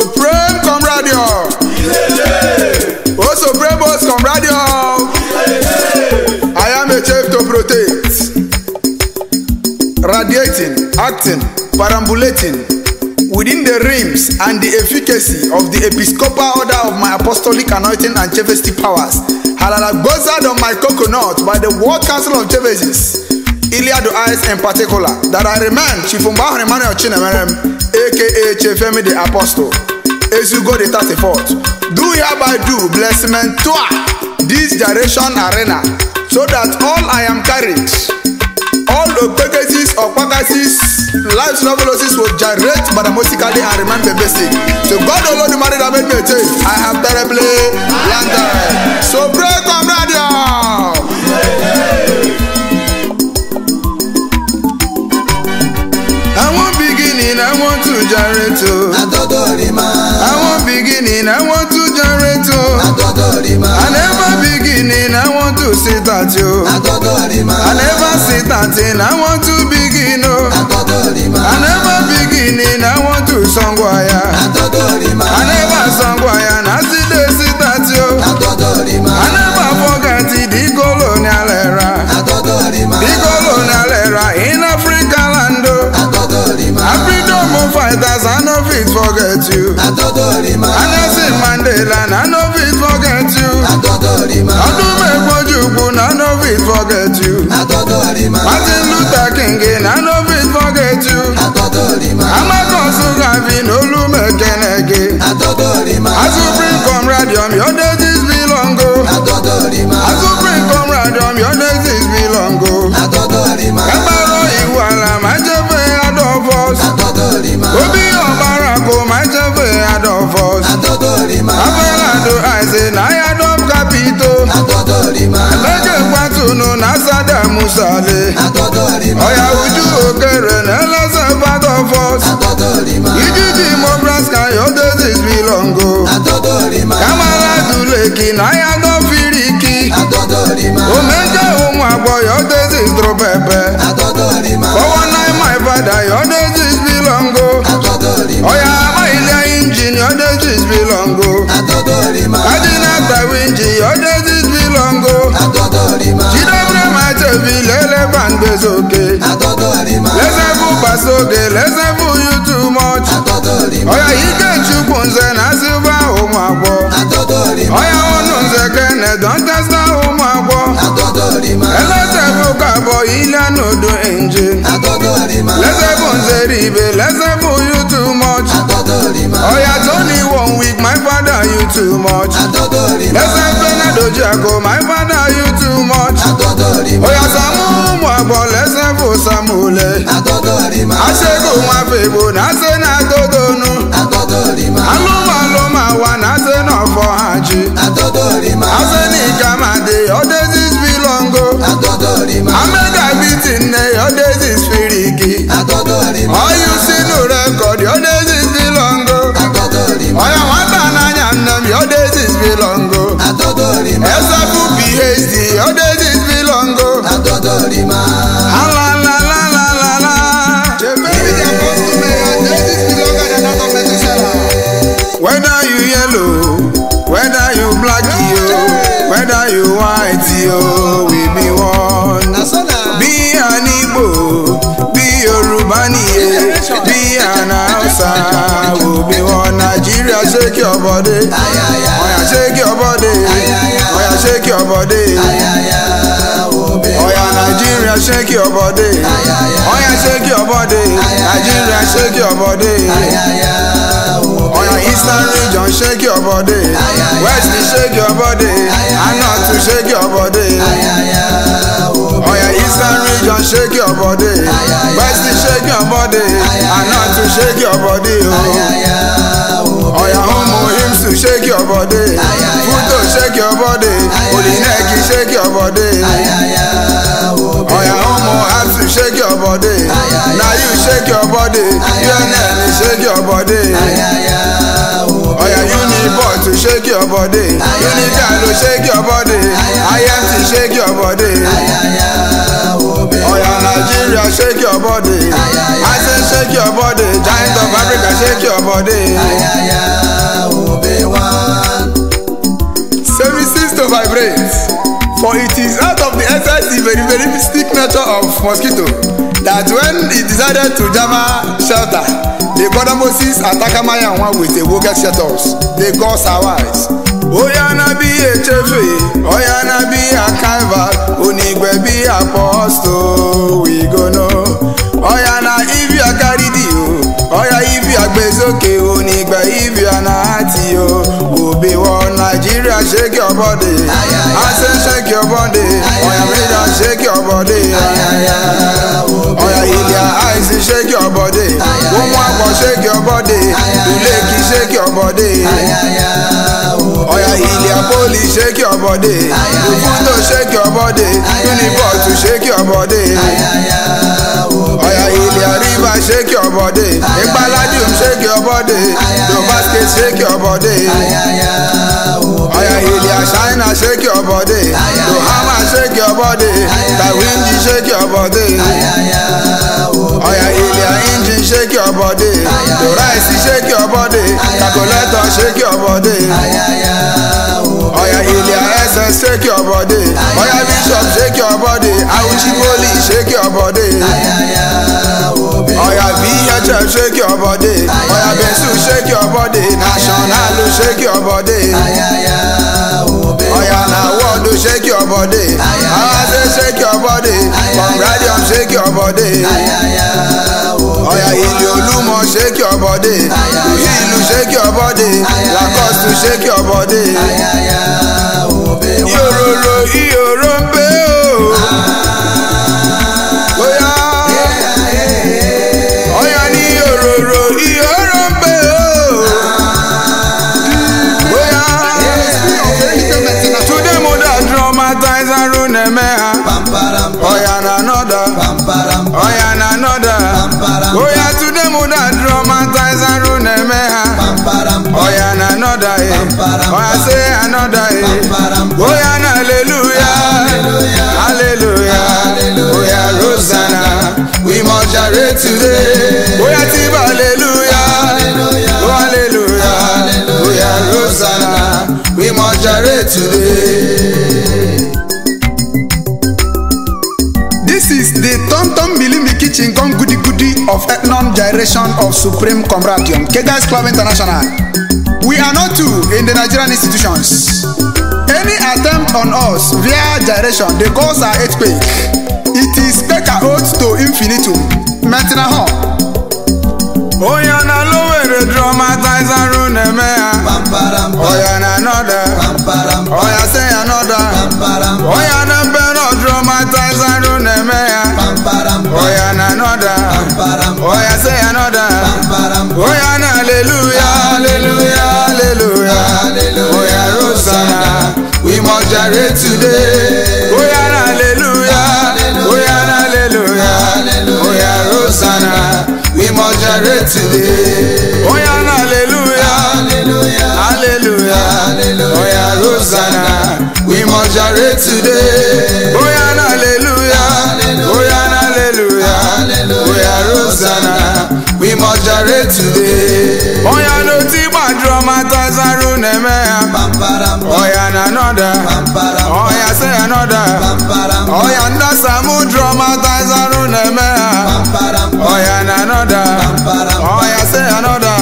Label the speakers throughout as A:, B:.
A: supreme comradio. oh supreme boss comradio. I am a chief to protect. Radiating, acting, perambulating within the rims and the efficacy of the episcopal order of my apostolic anointing and chevesty powers. Halalagboza of my coconut by the World Council of Chevesis, Iliad Eyes in particular, that I remain Chifumba Emmanuel Chinemerem, aka Chefemi the Apostle go the 34 fourth, Do hereby do blessment to this generation arena so that all I am carried, all the Okpekesis, Okpakasis, life's novelosis will generate but musically and remain basic. So God alone the Olodumare that made me change, I have terribly blundered. So pray, comrade. generate o. Atọ́dọ̀rìmá. I wan beginning, I want to generate o. Atọ́dọ̀rìmá. I never beginning, I want to sit at o. Atọ́dọ̀rìmá. I never sit at in, I want to begin oh. o. Atọ́dọ̀rìmá. I never beginning, I want to sangwaya. Atọ́dọ̀rìmá. I never sangwaya. forget you. I don't Anderson Mandela, I no fit forget you. I don't Atodorima. Odumekwoju, I no fit forget you. I Atodorima. Martin Luther musale ọ̀yà ojú òkèrè n'eleze part of us iji ji mobraska your days belong o kamala duleki n'ahịa dọfiriki o mejọ ụmụ agbọ your days drop ebe. million odo engine. Lẹ́sẹ̀ fún lẹ́sẹ̀ fún you too much. Ọ̀yà tó ní one week my father you too much. Lẹ́sẹ̀ fún Nadoji Ako my father you too much. Ọ̀yà Sàmú mú àgbọ̀ lẹ́sẹ̀ fún Sàmúlẹ̀. Aṣẹ́gun àfẹ́bò náà ṣe náà tó tónú. o we be one. Be an Igbo, be Yoruba niye, be an Hausa, we be one. Nigeria shake your body, Oya shake your body, Oya shake your body. Oya Nigeria shake your body, Oya shake your body, Nigeria shake your body. Oyo eastern region shake your body West shake your body Anot to shake your body. Eastern region shake your body West Western shake your body and North to shake your body oh. Oya homo hymns to shake your body Futo shake your body Olineki shake your body Oya homo hats to shake your body Now you shake your body Your name shake your body Oya Unibot to shake your body. Uniga to shake your body. Ayam to shake your body. Oya Nigeria shake your body. I say shake your body. Giant of Africa shake your body. Services to vibrate. For it is out of the SIC very very mystic nature of mosquito that when he decided to jama shelter the brother moses atakamaya wọn with a wicked shelters they got survives. oya na bí echefe oya na bí akaiva onigbe bí apostle we go know oya na ibi akaridi o oya ibi agbezoke onigbe ibi anati o obe wọ nàìjíríà ṣe your body. I say shake your body. Oh yeah, me down shake your body. Oh yeah, Ilya, I see shake your body. Woman, shake your body. Uleki, shake your body. Napoli, shake your body. Bufuto, shake your body. Uniport, shake your body. Oya Ilẹ̀ Àríwá, shake your body. Ìpaladium, shake your body. Dobasket, shake your body. Oya Ilẹ̀ China, shake your body. Dohama, shake your body. Tawindi, shake your body. Oya Ilẹ̀ Injin, shake your body. Doraisi, shake your body. Calculator, shake your body. Oya Ilya essence, shake your body. Oya Bishop, shake your body. Auchiboli, shake your body. Oya VHF, shake your body. Oya Bensu, shake your body. National, shake your body. Oya Nawodu, shake your body. Awase, shake your body. Congradium, shake your body. Oya Ilya Olumo, shake your body. Ilu, shake your body to shake your body. Ayaya, oh, baby. Yororo, iyo. wá sí another day bóyá náà hallelujah hallelujah bóyá rosanna we must share today bóyá tí bá hallelujah hallelujah bóyá rosanna we must share today. This is the Tom Tom Bilimi Kitchen come Goody Goody of Ethnon generation of Supreme Comradium, Kegas Club International. We are not two in the Nigerian institutions. Any attempt on us via gyration dey cause our earthquake. It is peka oath to infinitum. Metina hɔ. Oya na lowere dramatize aru na-eme Oya na anọda. Oya se anọda. Oya na mbe dramatize aru na-eme Oya na anọda. Oya se anọda. Oya na hallelujah. jàre today. Oya hallelujah, oya hallelujah, oya Rosanna. we must jàre today. Oya hallelujah, hallelujah, oya Rosanna. we must jàre today. Oya hallelujah, oya hallelujah, oya Rosanna jàre today. Oya no ti ma dramatize aruneme. Oya na anoda. Oya say anoda. Oya nda samu dramatize aruneme. Oya na anoda. Oya say anoda.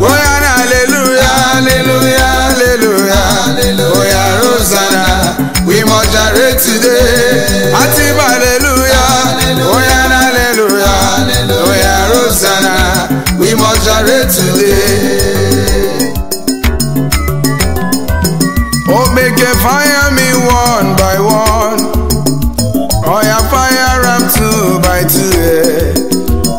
A: Oya na hallelujah hallelujah hallelujah. Oya Rosanna we must jàre today. today. Oh, make a fire me one by one. Oh, yeah, fire up two by two.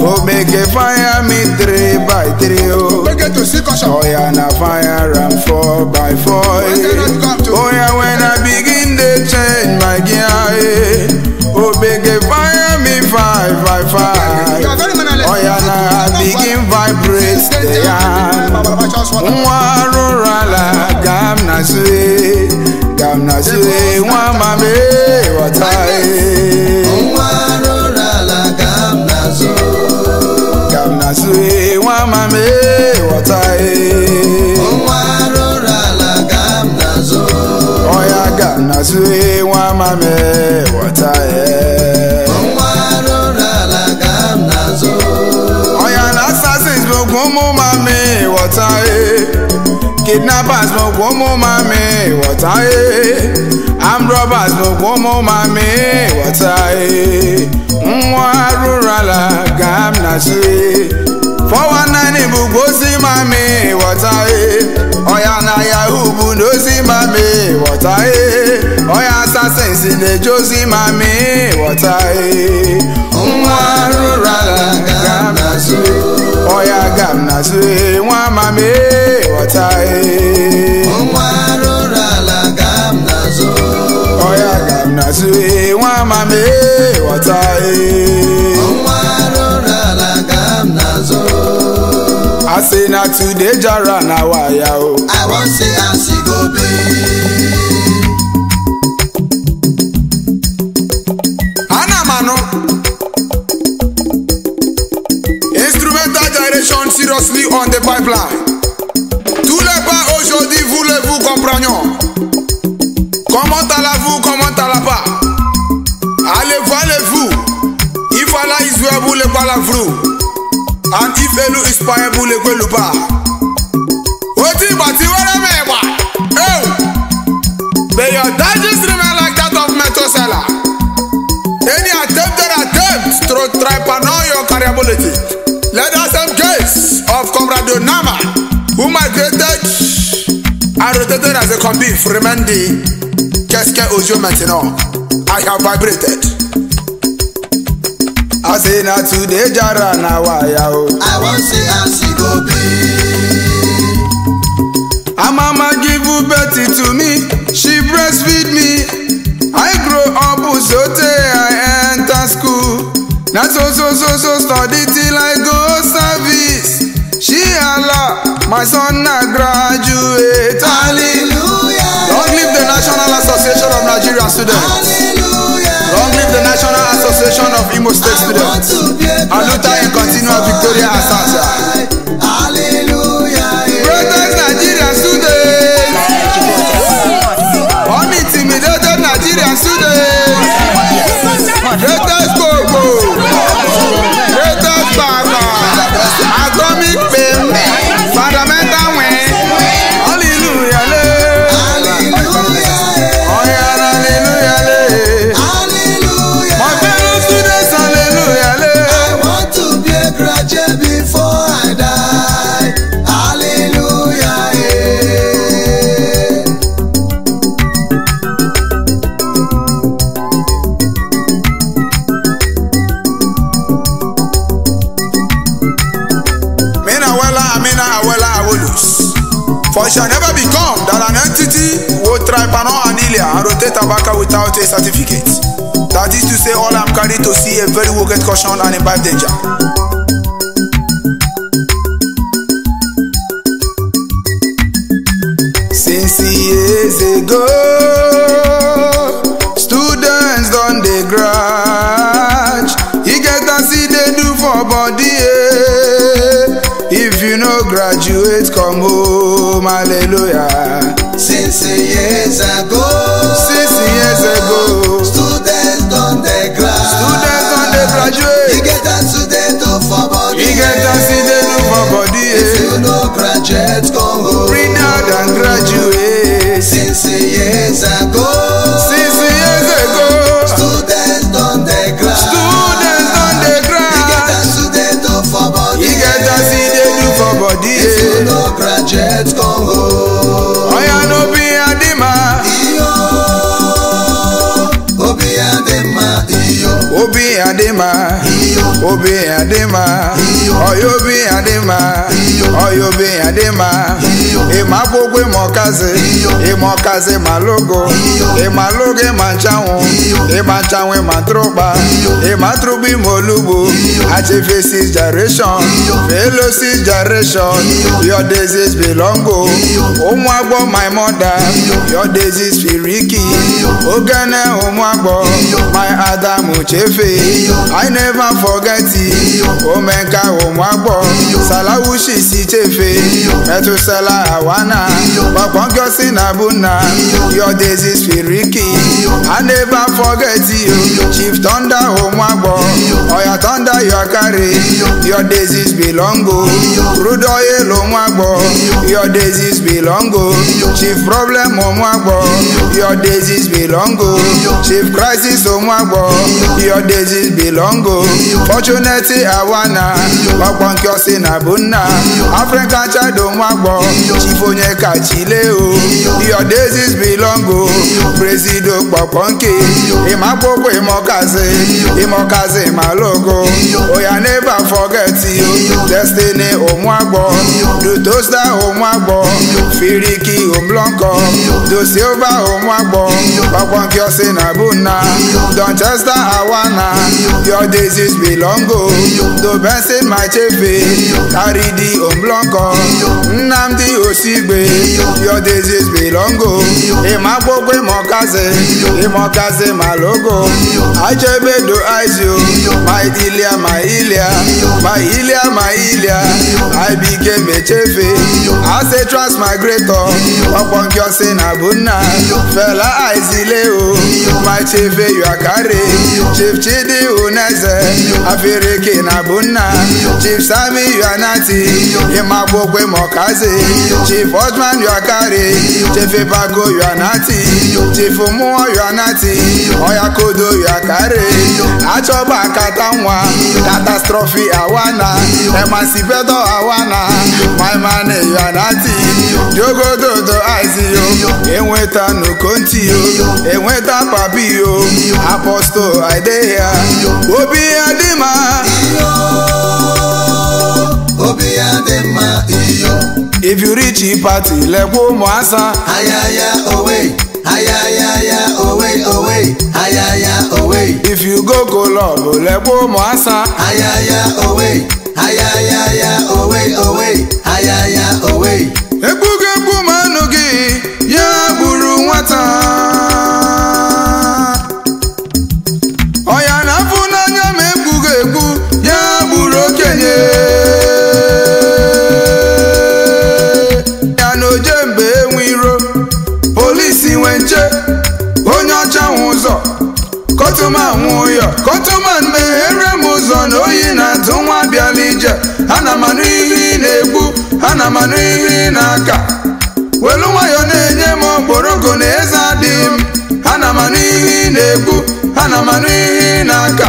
A: Oh, make a fire me three by three. Oh, oh yeah, na fire up four by four. nwa rụrụ ala gam na sue gam na sue nwa mame ghọta e. gam na gam na sue nwa mame ghọta e. nwa gam na sue ọya gam na sue nwa mame ghọta e. gam na sue ọya na ogun ụmụ ma water. Kidnappers no come on mommy, water. Armed robbers no come on mommy, water. Nwa rurala gam na shi.
B: 419 bu
A: gosi mommy, water. Oya na Yahoo bu no si mommy, water. Oya assassins in the Josie mommy, water. Nwa rurala gam na shi. Oya gam na zwe ma me watai Unwa e. rura la gam na zo Oya gam na zwe ma me watai Unwa e. rura ala gam na zo I say na today jara na waya o oh. I wan say I see go be on the pipeline. Tous les pas aujourd'hui, voulez-vous comprendre Comment allez-vous, comment allez pas Allez-vous, vous Il fallait Israël pour les palavres. And if Elu is payé pour les Guelupa. Oti bati like that of Metosela. Any attempt or attempt to try to know your carriability. Let us steps of Comrade Nama, who migrated and rotated as a convict remain the Keske Ojo Maintenant. I have vibrated. I say na today jara na waya o. Oh. I wan see how she go be. Her mama give birth to me, she breastfeed me. I grow up sote I enter school. Na so so so so study till I go service. She Allah, my son now graduate. Hallelujah. Long live the National Association of Nigerian Students. Hallelujah. Long live the National Association of Imo State I Students. Aluta in continual victoria asasa. cannot handle it and rotate tobacco without a certificate. That is to say all I'm carrying to see a very wicked caution and imbibe danger. Since years ago, students don dey grudge. he get as see they do for body eh? If you no graduate come home hallelujah. Six years ago. Six years ago. Students don dey graduate. Students don dey graduate. You get as you dey do for body. You get as you dey do for body. If you no graduate come home. Bring out and graduate. Six years ago. Six obi adema oyo obi adema oyo obi adema ema gbogbo ema ọkazi ema ọkazi ema logo ema logo ema nchanwụ ema nchanwụ ema trụba ema trụba ime olugbo achefe six generation fellow generation your disease belong o ụmụ agbọ my mother your disease firiki ogene ụmụagbọ my adamu chefe i never forget you. omenka ụmụagbọ salawushi si chefe metụsala awana gbakpọnkọsi na buna yọdezi spiriki i never forget you chief thunder ụmụagbọ oya thunder your carry your disease belong o rudoye lomwagbọ your disease belong o chief problem ụmụagbọ your disease belong belong o chief crisis Umuagbo your disease belong o fortunately awana ọkpọ nke ọsị na bụ african child Umuagbo chief onye kachile o your disease belong o presido kpọkpọ nke ịmakpọkpọ ịmọkazi ịmọkazi malogo oya never forget you destiny Umuagbo dutosta Umuagbo firiki omlọnkọ dosilva Umuagbo. Kwankwankyo Nabuna, Donchester Awana, your disease belong go, the best in my chefe, carry the Omblonko, Nnamdi Osigbe, your disease belong go, Imapokwe my Imokaze Malogo, Achebe do Aizio, my Ilia, my Ilia, my Ilia, my Ilia, I became a chefe, as a transmigrator, Kwankwankyo Nabuna, fella Isaac. zile o machefe yuakare chief chidi uneze afiriki na bunna chief sami yuanati imagbokwe mokazi chief osman yuakare chief ibago yuanati Chifu Muoyo Nati Oya Kodo ya kare Achọba akata nwa Catastrophe awana Emancipedo awana My man ya nati Diogododo Aizio Enweta nukonti yo Enweta papi yo Apostle Aideya Obi Adima Obi Adima If you reach party, let lekwo mo asa. Ayaya, oh wait ayayaya owe owe ayaya owe. if you go go, Cologne olẹ́gbó mọ́ àṣà. ayaya owe ayayaya owe owe ayaya owe. egwu na-amanụ ihe ị na-egbu ha na-amanụ ihe ị na-aka welu nwayọ na-enye m okporoko na eze adịghị m ha na-amanụ ihe ị na-egbu ha na-amanụ ihe ị na-aka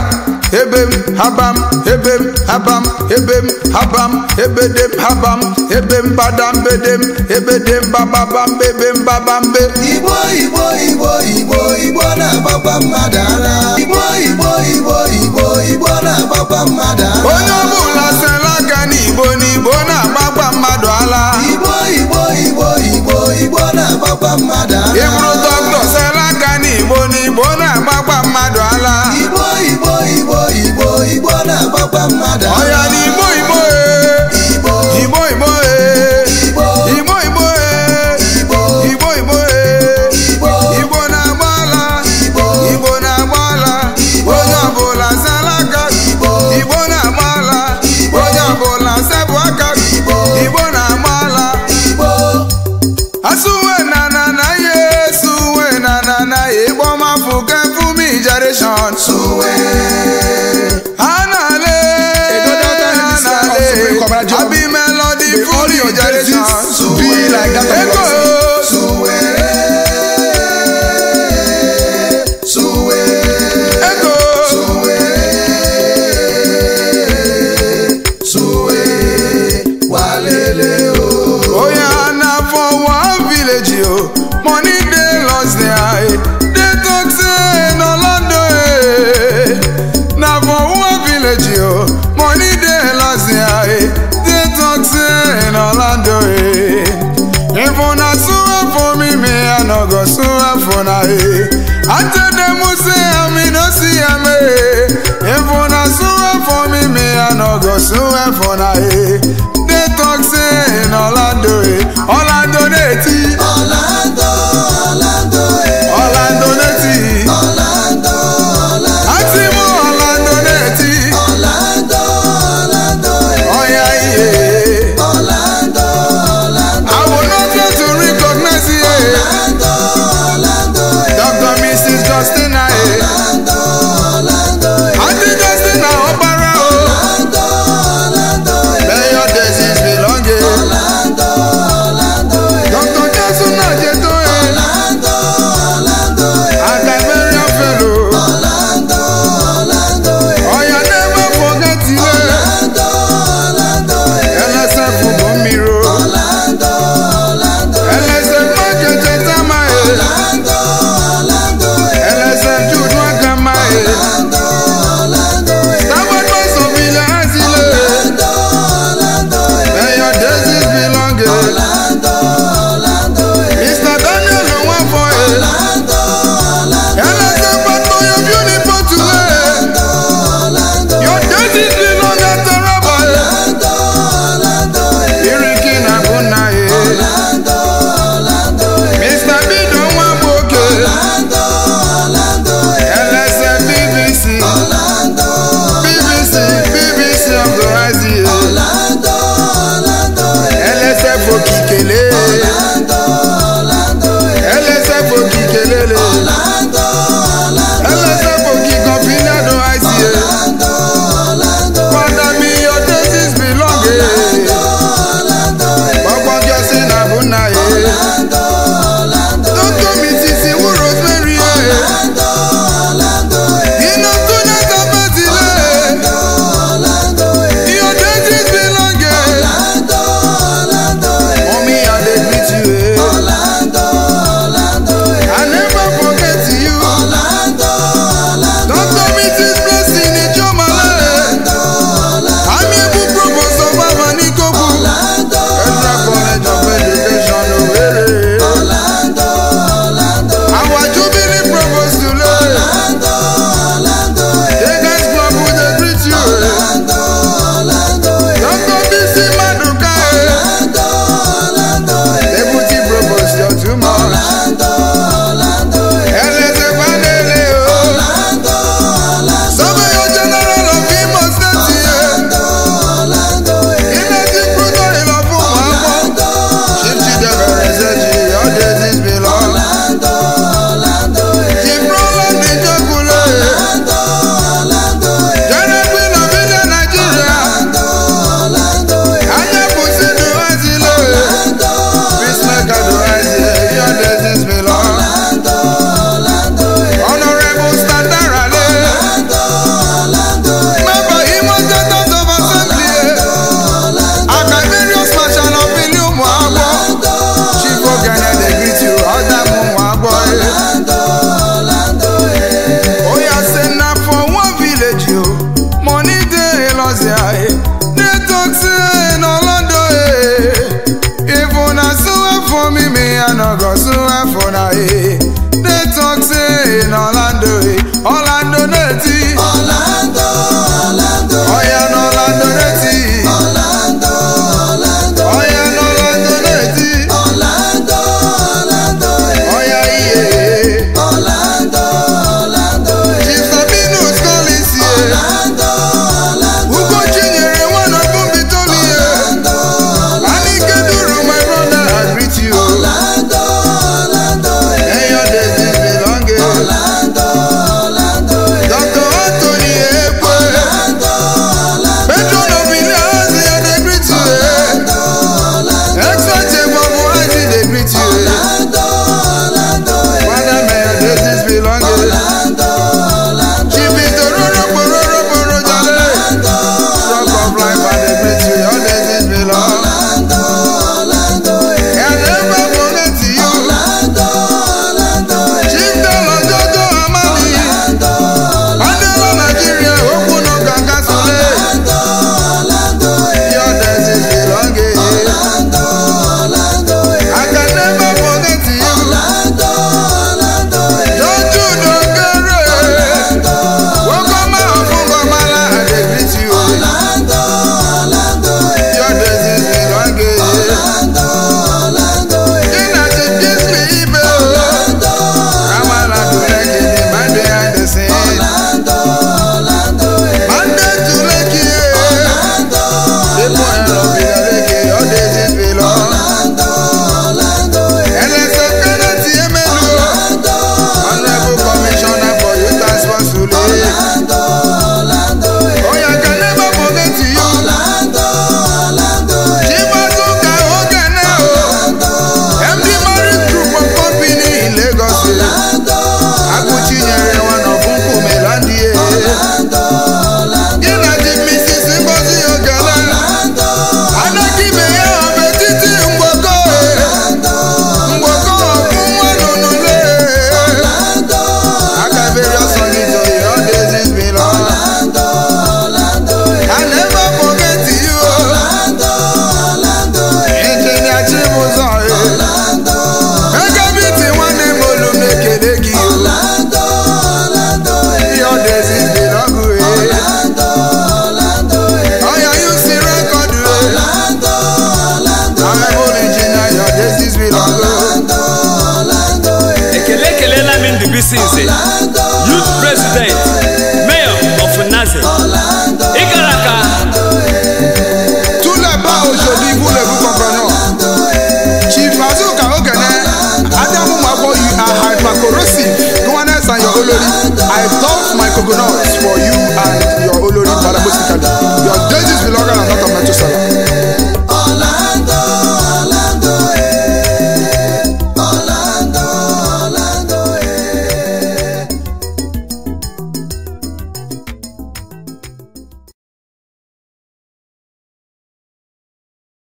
A: ebe m haba m ebe m habam ebem habam ebedem habam ebem badam bedem ebedem bababam bebem babambe igbo igbo igbo igbo igbo na-agbakwa mmadụ ara igbo igbo igbo igbo igbo na-agbakwa mmadụ ara onye ọbụla sela aka n'igbo n'igbo na-agbakwa mmadụ ala igbo igbo igbo igbo igbo na-agbakwa mmadụ ara ịbụrụ dọkịta sela aka n'igbo n'igbo na-agba I'm atene muse amino si ame efona suwe for me, me I mi go suwe for na ye.